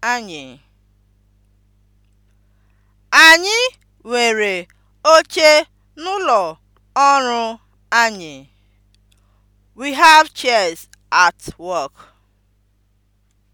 anyị. Anyị nwere oche n'ụlọ ọrụ anyị. We have chairs at work.